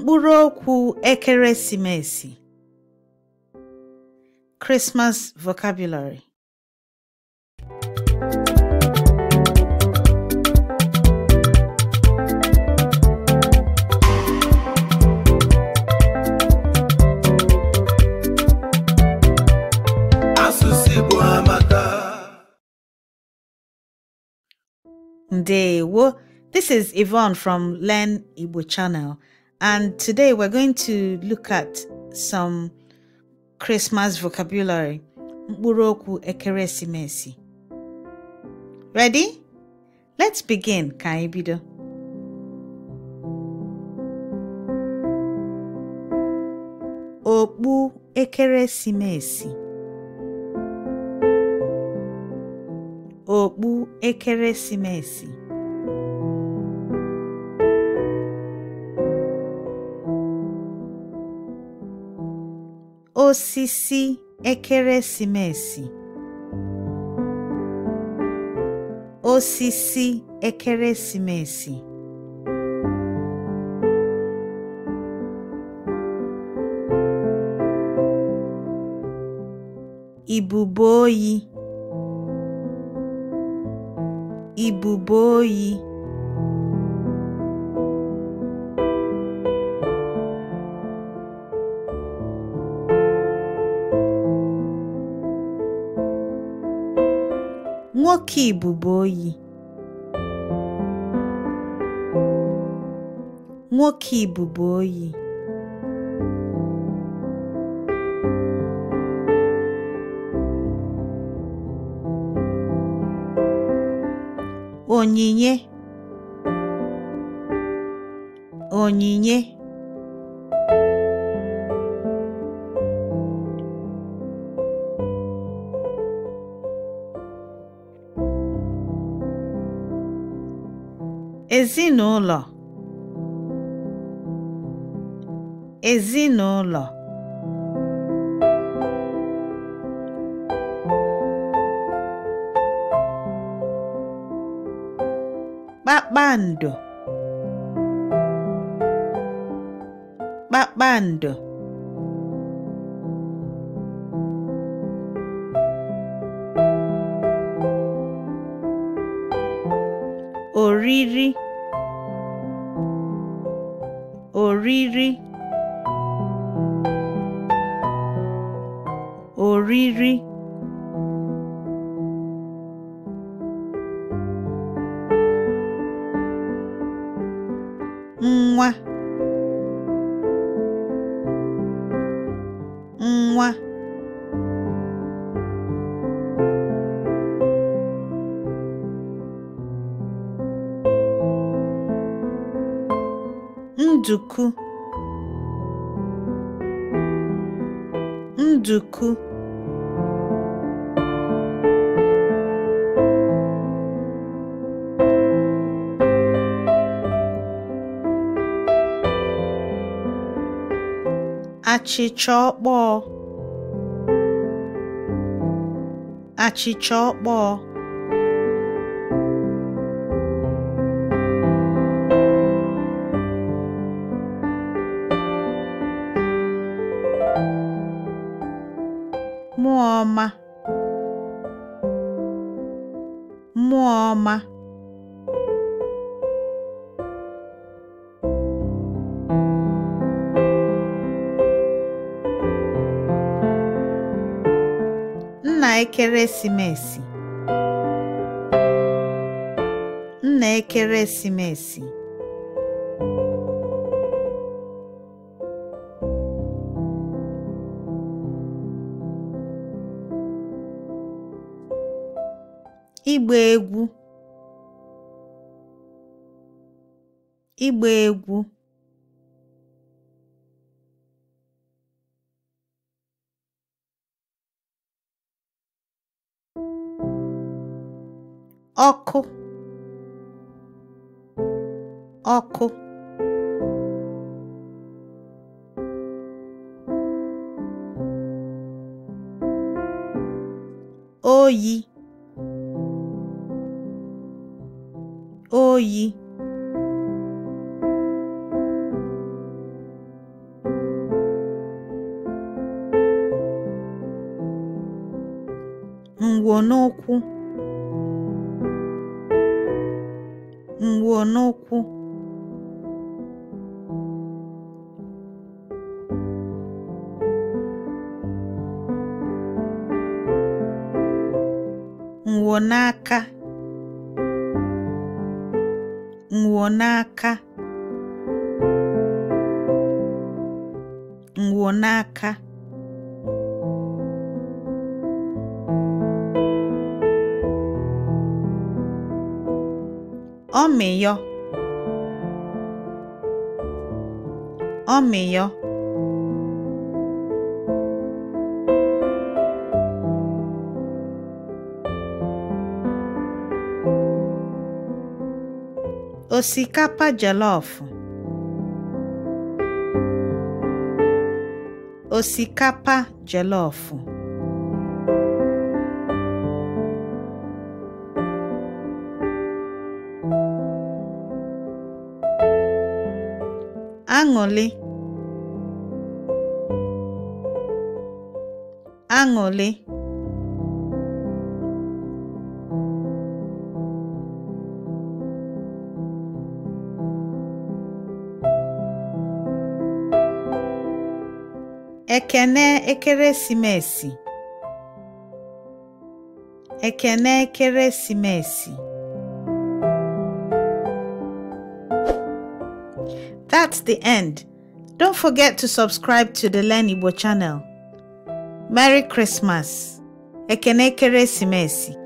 mkpụrụ okwu ekeresimesi Christmas vocabulary asụsụ Igbo amaka ndewo This is Yvonne from Learn Igbo channel. And today we're going to look at some Christmas vocabulary. Mkpụrụokwu ekeresimesi. Ready? Let's begin. Ka bido. Okpu ekeresimesi. Okpu ekeresimesi. osisi ekeresimesi osisi ekeresimesi ibube oyi ibube oyi oke ibuboyi nwoke oyi onyinye onyinye ezinụlọ ezinụlọ kpakpando kpakpando oriri oriri oriri mwah, mwah. nduku nduku achịcha ọkpọọ achịcha ọkpọọ mmụọ ọma nna ekeresimesi nna ekeresimesi ịgba egwu ịgba egwu ọkụ ọkụ oyi oyi ngwo n'ụkwụ ngwo n'ụkwụ ngwo n'aka ngwo n'aka ngwo n'aka ọmịyọ ọmịyọ doce capa de alofo. Osi capa de alofo. Angole. ekene ekeresimesi ekene ekeresimesi That's the end. Don't forget to subscribe to the Learn Igbo channel. Merry Christmas. Ekene ekeresimesi.